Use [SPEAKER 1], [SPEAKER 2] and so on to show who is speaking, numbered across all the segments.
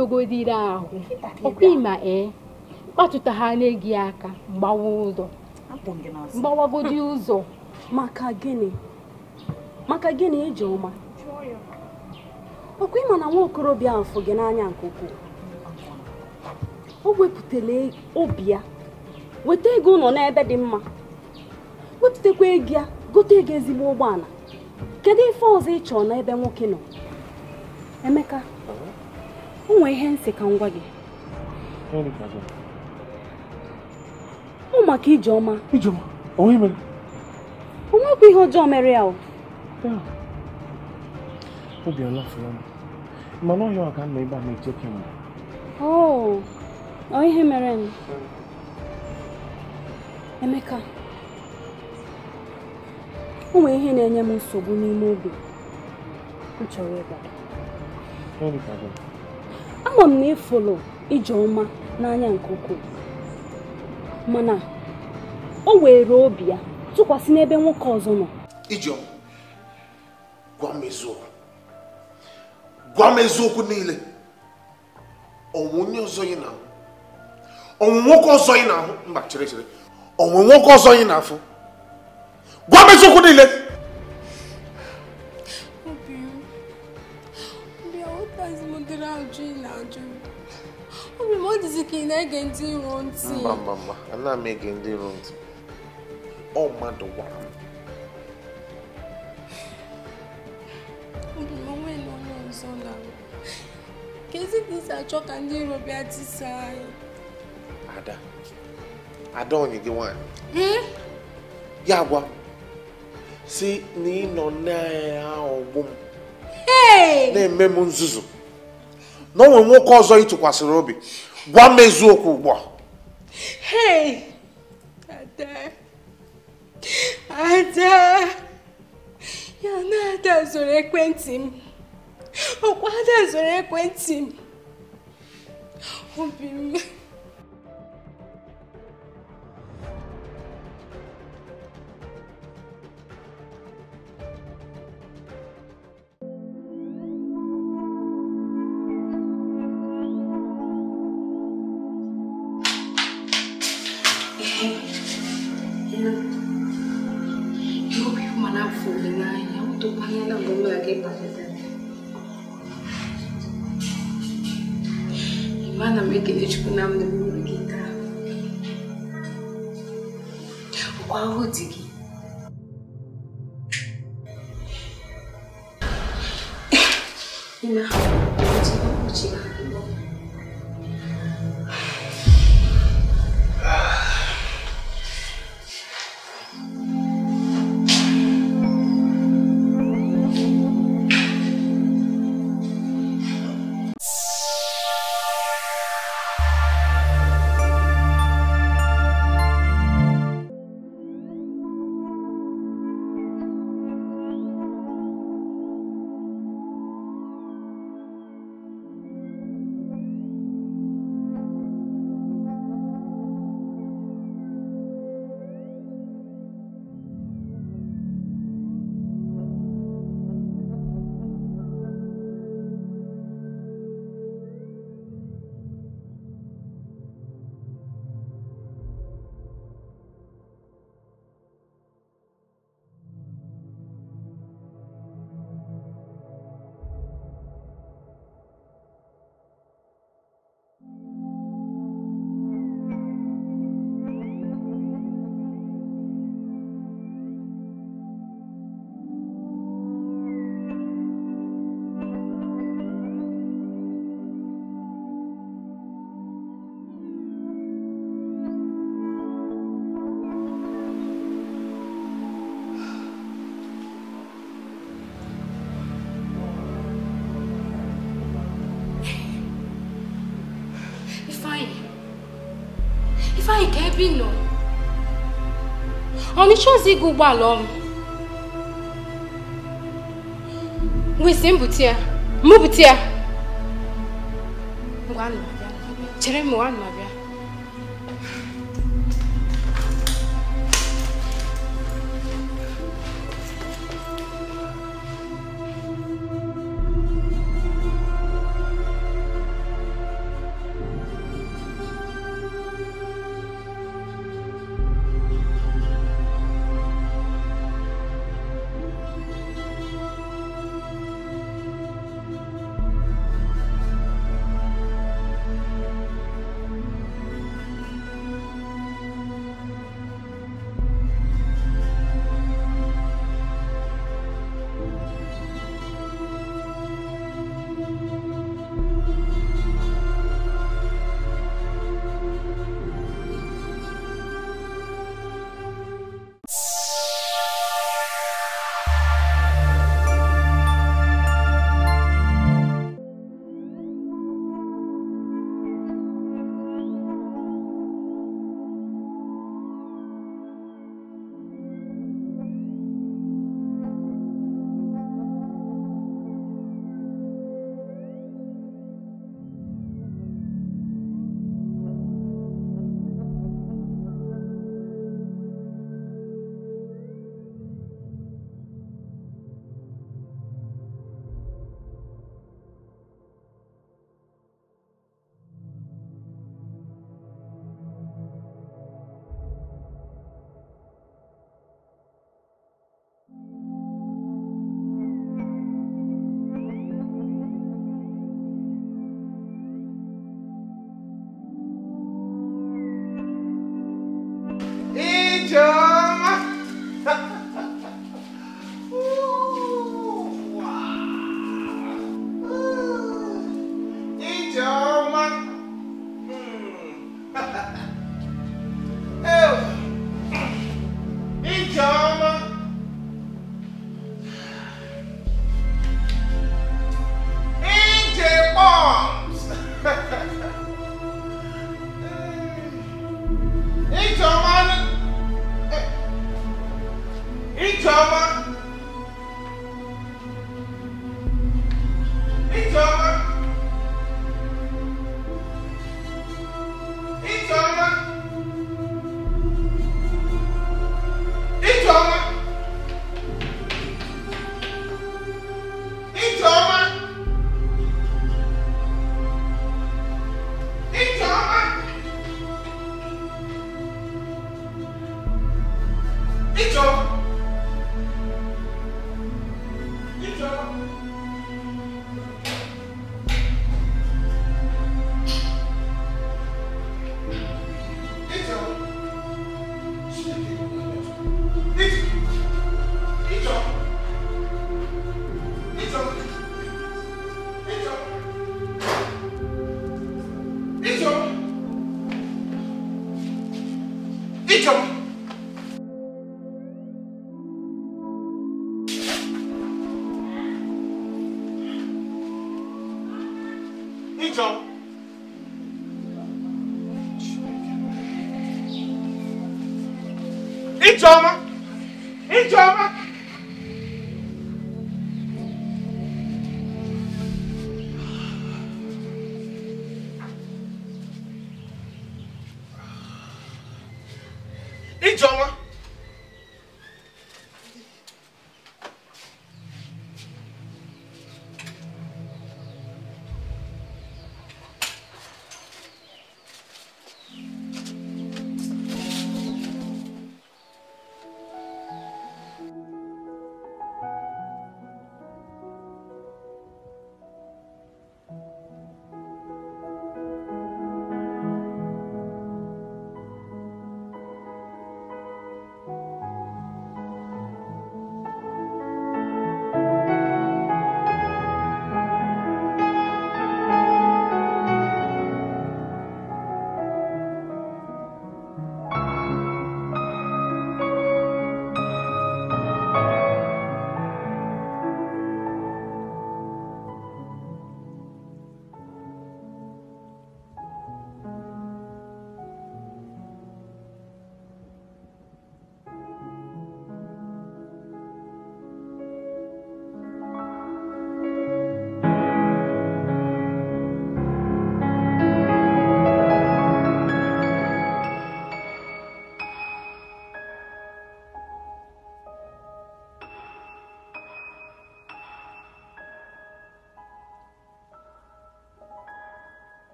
[SPEAKER 1] dogodiri ahụ ọkwaima ee eh, kpatụta ha n'egi aka gbawa ụzọ mgbawagodi ụzọ maka gịnị maka gịnị eji ọma ọkwa ịma na nwa okorobịa ahụ gị n'anya nke ukwuu o wepụtala obi ya weta ego ụlọ n'ebe dị mma wepụtakwa ego ya gote ego ezigbo ụgbọala kedu ife ọzọ ị chọrọ n'ebe nwoke nọ emeka o nwee ihe nsị ka m gwa gị ọ maka ijeọma o nwekwa ihe ọjọọ mere ya o ihe mere m Emeka o nwere ihe na-enye m nsogbu n'ime obi m chọrọ ịgbado ama m na ịfụlụ Ijeọma n'anya nke ukwuu mana o were obi ya tụkwasị n'ebe nwoke ọzọ nọ Ijeọma
[SPEAKER 2] gwa m eziokwu gwa m eziokwu niile ọnwụ onye ọzọ ị na-ahụ ọnwụ nwoke ọzọ ị na-ahụ mba chere chere ọnwụ nwoke ọzọ ị na afọ gwa m eziokwu niile
[SPEAKER 1] obere ajụ ị na-ajụ obi m ọ dịzi ka ị na-ege ndị iro ntị mba
[SPEAKER 2] mba mba anaghị m ege ndị iro ntị ọ mmadụ gwara
[SPEAKER 1] m obi m onwe na onye ọzọ na kezi ka isi achọ ka ndị iro bịa tisa anyị
[SPEAKER 2] ada ada onye gị nwaanyị hmm? ya gwa si na ị nọ ahụ ọgbụ m na-eme m nzuzu na o nwere nwoke ọzọ ị tụkwasịrị obi gwa m eziokwu ugbu a
[SPEAKER 1] hey ada ada ya na ada zoro ekwentị m ọkwa ada zoro ekwentị m obi m Malam Ekelechukwu na m na-eme Kwa ahụ dị ịchọzi ịga ụgbọala ọrụ wesi mbute ya mbute ya chere m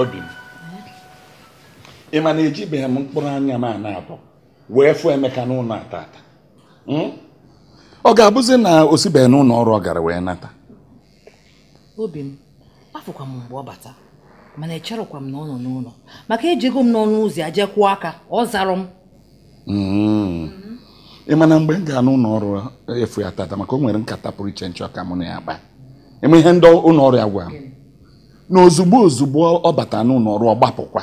[SPEAKER 2] obi m ị ma na ejibeghị m mkpụrụ anya m ana abụ wee fụ emeka n'ụlọ ata ata hmm? ọ ga-abụzi na o sibeghị n'ụlọ ọrụ ọ gara wee nata
[SPEAKER 1] obi m afụkwa m mgbe ọ bata mana echerọkwa m na ọ nọ n'ụlọ maka ejego m n'ọnụ ụzọ ya jee kwụọ aka ọ zara m
[SPEAKER 2] hmm. ị mana mgbe m gaa n'ụlọ ọrụ efu ya tata maka o nwere nkata pụrụ iche nchọ ka mụ na ya kpaa eme ihe ndị ụlọ ọrụ ya gwara m na ozugbo ozugbo ọ bata n'ụlọ ọ gbapụkwa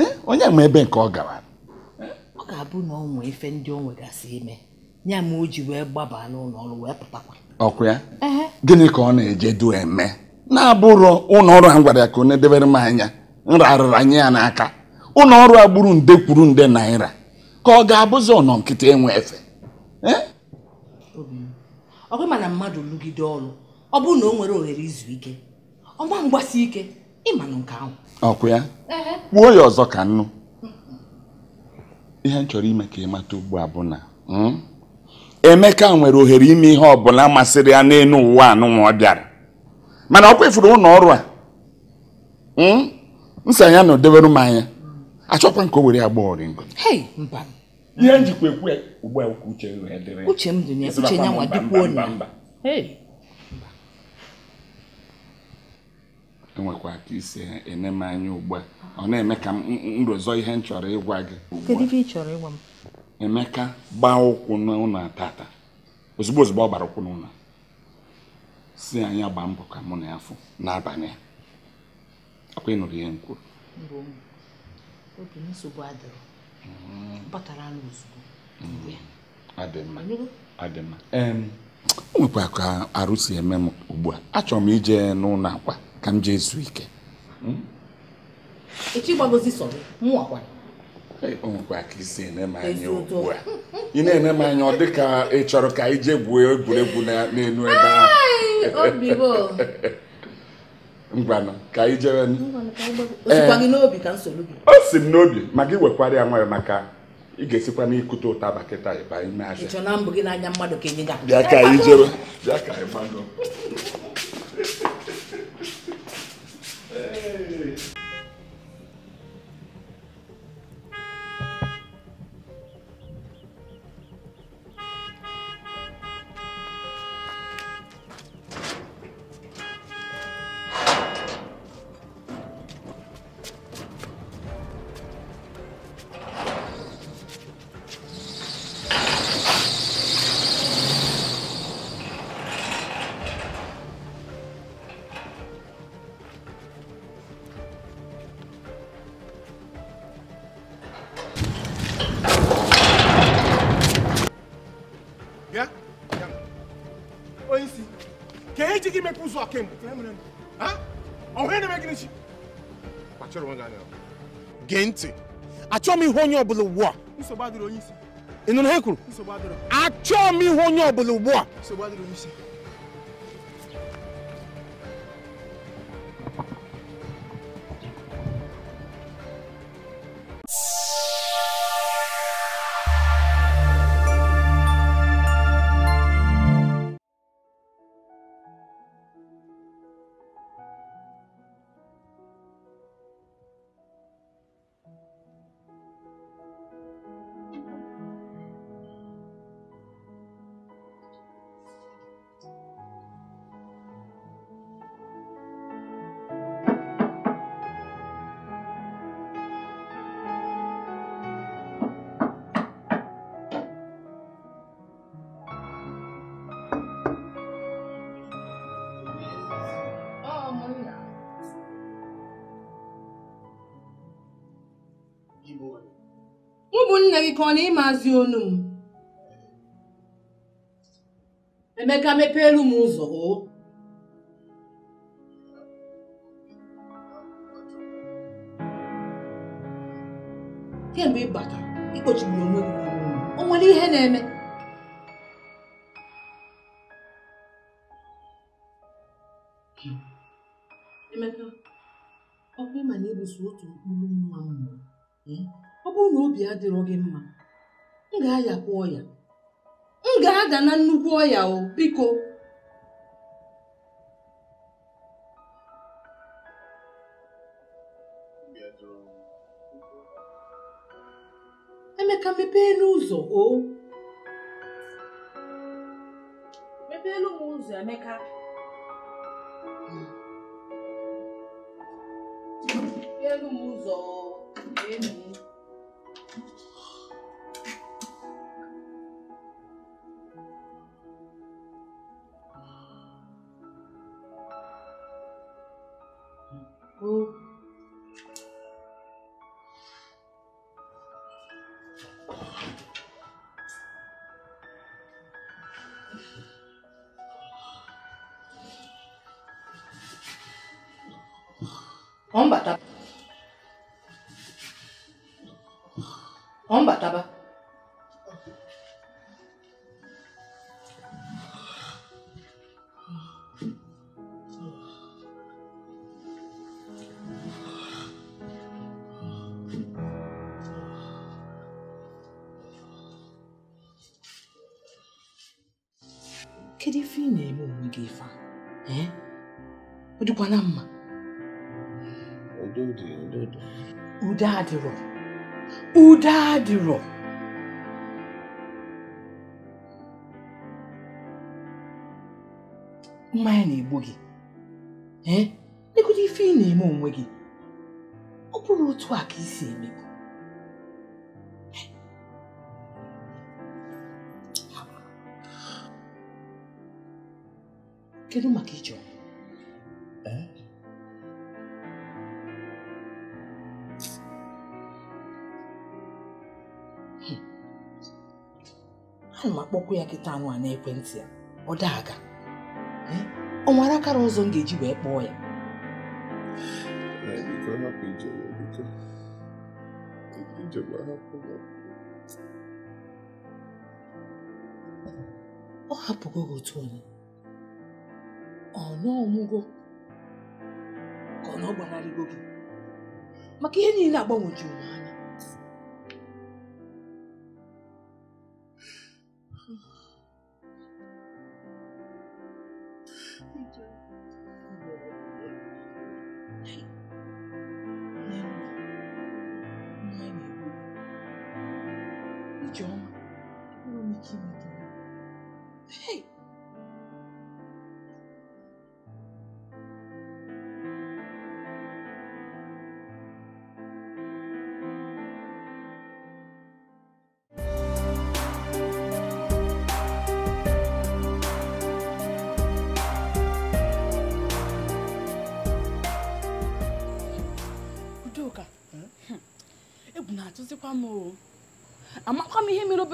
[SPEAKER 2] eh? onye nwe ebe nke ọ gara
[SPEAKER 1] ọ ga-abụ na ọ nwee efe ndị o nwegasị ime ya ma oji wee gbaba n'ụlọ ọrụ wee pụtakwa
[SPEAKER 2] ọkụ ya gịnị ka ọ na-eje du eme na-abụrụ ụlọ ọrụ a gwara ya ka ọ na m anya nrarịra nye ya n'aka ụlọ ọrụ a gburu nde kwuru nde naira ka ọ ga-abụzi ọnọ nkịta enwe efe eh?
[SPEAKER 1] ọ bụrụ mana mmadụ lụgide ọrụ ọ bụrụ na o nwere ohere izu ike ọgba mgbasi ike ịmanụ nke ahụ
[SPEAKER 2] ọkwa ya kwuo ya ọzọ ka nnụ ihe m chọrọ ime ka ị mata ugbu a bụ na hmm, Emeka nwere ohere ime ihe ọbụla masịrị ya n'elu ụwa anụnwa ọ bịara mana ọkwa ifuru ụlọ ọrụ a hmm, nsa ya na odebere m anya achọkwa nke o were agba oringo ihe njikwa ekwe. ugbu a uche uche m dị uche nwa dịkwuo na enwekwa ka isi eme m anya ugbu a ọ na-eme ka m rozọ ihe m chọrọ ịgwa gị kedu
[SPEAKER 1] ife
[SPEAKER 2] emeka gbaa ụkwụ n'ụlọ tata ozugbo ozugbo ọ gbara ụkwụ n'ụlọ si anya gbaa mbọ ka mụ na ya fụ n'abalị a ọkwa ịnụrụ ihe m kwuru mm. mm. o nwekwa ka arụ si eme m ugbu a achọrọ m ije n'ụlọ akwa Hmm? ka m jee zuo ike a ị na-ene m anya ọ dị ka ị chọrọ ka ije jee gwuo egwuregwu n'elu ebe ahụ ngwanụ ka eh. o si m n'obi ma gị wekwara ya nwayọ maka ị ga-esikwa n'ikute ụtaba kịta ịba ime ahịa
[SPEAKER 1] e bịa ka anyị
[SPEAKER 2] bịa ka anyị Hey. so aka mu ọhụ ya na-eme gịnị chi kpachara onwe gị anya gee ntị achọghị m ihe onye ọbụla ugbu a nsogbu adịrị onye isi ị nụrụ ha kwuru achọghị m ihe onye ọbụla ugbu a nsogbu adịrị
[SPEAKER 1] mụ bụ nna gị ka ọ na ịmazi onu m emeka mepee elu m ụzọ oo kemgbe ị batara ịkpochigburu onwe gị o nwere ihe na-eme Emeka, ọ bụ ịma na ịbụso otu mkpụrụ nwa mmụọ ọ bụrụ na obi adịrọ gị mma m ga-ayakwa ọya m ga-ada na nnukwu ọya o biko emeka mepee n'ụzọ o mepeelu m ụzọ emeka hmm. mepeelu m ụzọ Amen. dịkwana mma ude adịrọ ude adịrọ mmanya na-egbu gị legodo ife ị na-eme onwe gị ọ bụrụ otu a ka isi emebu kedu maka ije ọnwụ bed. ana m akpọkwa ya kịta anụ a n'ekwentị ya ọ daga ọ nwere akara ọzọ m ga-eji wee kpọọ ya ọ hapụgo otu onye ọ nọọ ọmụgo
[SPEAKER 2] ahụ na ọ gbanarịgo gị
[SPEAKER 1] maka ihe niile agbanwejuru m anya John.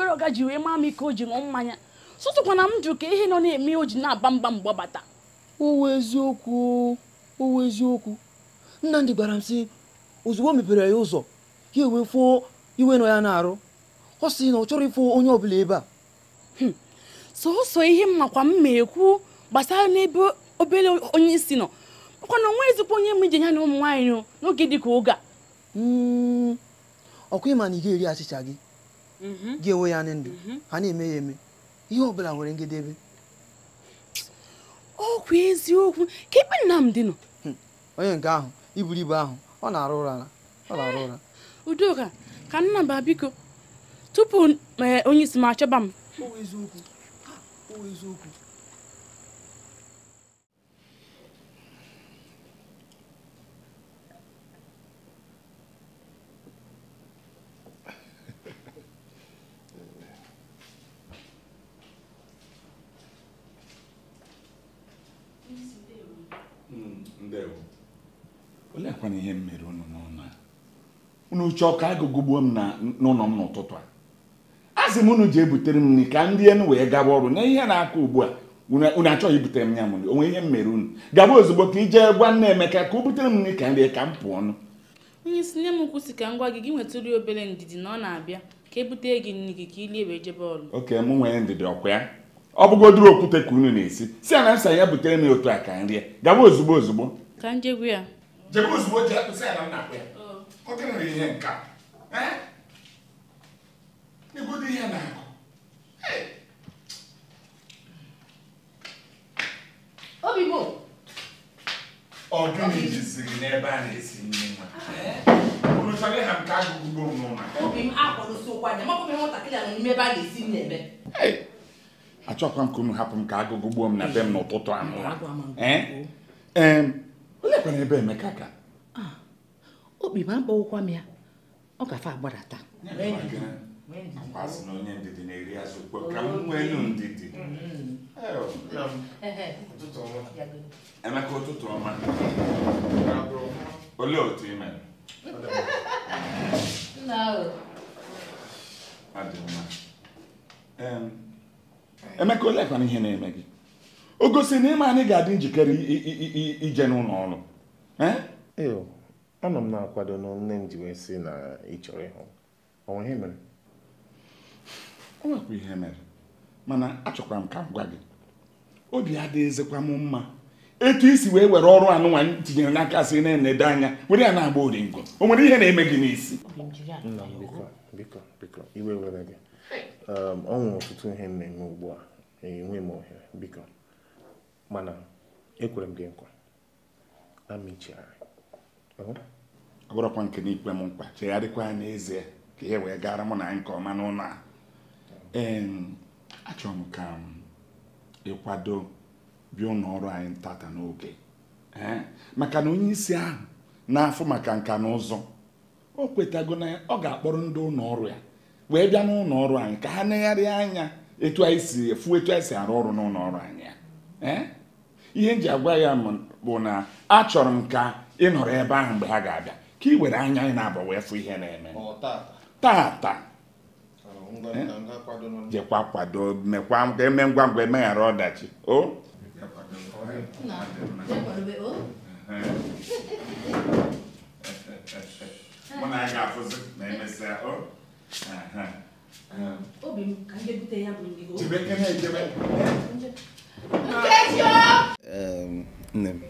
[SPEAKER 1] obere ọga ji wee maa m ike o ji ṅụọ mmanya sụtụkwana m jụ ka ihe nọ na-eme o ji na-aba mgba mgbe bata owu eziokwu owu eziokwu Nnamdị gwara m sị ozugbo mepere ya ụzọ ya ewee fụọ iwe nọ ya na-arụ ọ sị na ọ chọrọ ịfụ onye bụla ebe a hmm. sọsọ ihe makwa kwa mma ekwu gbasara n'ebe obere onye isi nọ makwa na onwe ezikwa onye m ije ya na ụmụ nwaanyị n'oge ka oge a hmm. ọkụ ịma na ị ga-eri achịcha gị Gị enwe ya ndị ndụ mhm. ha na-eme ya eme ihe ọ bụla nwere ngedebe ọkwa eziokwu ka m dị nọ hmm. onye nke ahụ iburu ibu ahụ ọ na-arụ ụra ọ na-arụ ụra Udoka ka nna Nnamba biko tupu eh, onye isi m achọba m eziokwu
[SPEAKER 2] akwana ihe m mere unu n'ụlọ unu uche ọka agụgụgbuo m n'ụlọ m n'ụtụtụ a a m unu ji ebutere m nri ka ndị enu wee gaba ọrụ na ihe na akọ ugbu a unu achọghị ibutere m ya m onwe ihe m mere unu gaba ozugbo ka ije gwa nna Emeka ka o butere m nri ka nri ka m pụọ ọnụ
[SPEAKER 1] onye isi nne m kwụsị ka m gị gị nwetụrụ obere ndidi na ọ na-abịa ka ebute gị nri gị ka ilie wee jebe ọrụ
[SPEAKER 2] oke m nwere ndidi ọkwa ya ọ bụgodoro okwute ka unu na-esi si a na nsa ya butere m otu a ka nri gaba ozugbo ozugbo
[SPEAKER 1] ka njegwu ya
[SPEAKER 2] jebe ozugbo jee kpesa na nnakwa ya oh. ọ nwere ihe nke a eh? ihe na-akụ obigbo ọ gịnị jizi gị n'ebe a na-esi nri nwa eh? unu chọrọ ịha nke agụgụ
[SPEAKER 1] obi m a a na-esi
[SPEAKER 2] achọkwa m ka unu hapụ m ka agụgụ gbuo m na be m n'ụtụtụ anụ kwere ebe Emeka ga
[SPEAKER 1] okpi ma mkpọwụkwa m ya ọ gafe agbadata na
[SPEAKER 2] onye ndidi na-eri azụ ukwe ka m nwenu ndidi Emeka ụtụtụ ọma
[SPEAKER 1] olee otu ime
[SPEAKER 2] Emeka oleekwana ihe na-eme gị o gosi na ịma anyị ga-adị njikere ije n'ụlọ ọrụ anọ m na-akwado na nne m ji wee sị na ị chọrọ ịhụ onwe ihe mere o nwekwa ihe mere mana achọkwara m ka m gwa gị obi adịghịzikwa m mma etu isi wee were ọrụ anụnwa tinyere n'aka si na enedo anya were ya na-agba oringo o nwere ihe na-eme gị n'isi iwe were gị ọ nwere ọtụtụ ihe na-eme ugbu a enwe m ohere biko mana ekwere m gị nkwa na mmechighari ọ bụrụkwa nke n'ikpe m mkpa chegharịkwa ya n'ezie ka ihe wee gara mụ na anyị nke ọma n'ụlọ a achọrọ m ka ịkwado bịa ụlọ ọrụ anyị tata n'oge eh? maka na onye isi ahụ na-afụ maka nka na ụzọ o kwetago na ọ ga-akpọrọ ndị ụlọ ọrụ ya wee bịa n'ụlọ ọrụ anyị ka ha negharịa anya etu anyị si efu etu anyị si arụ ọrụ n'ụlọ ọrụ anyị ya eh? ihe m ji agwa ya bụ na achọrọ m ka ị nọrọ ebe ahụ mgbe ha ga-abịa ka ị were anya ị na-abọ wee fụ ihe na-eme tata jekwa kwado mekwa eme ngwa ngwa emeghara ọdachi o nne m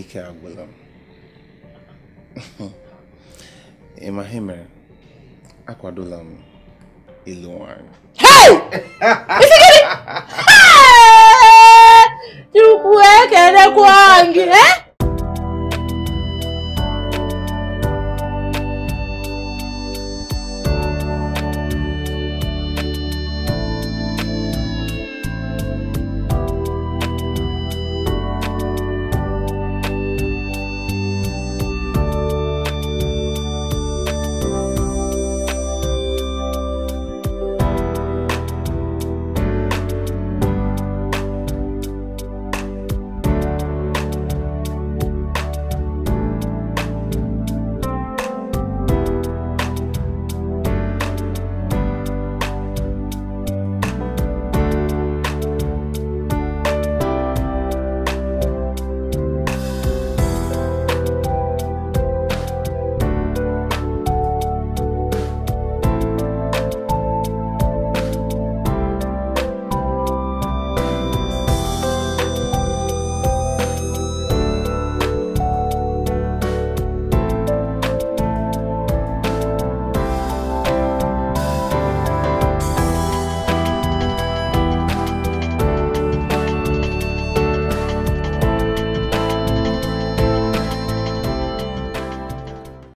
[SPEAKER 2] ikaragulam. Emahime akwadolam ịlụ akwadola m
[SPEAKER 1] Isi nwanyị Chukwu ekelekwa gị, ee eh?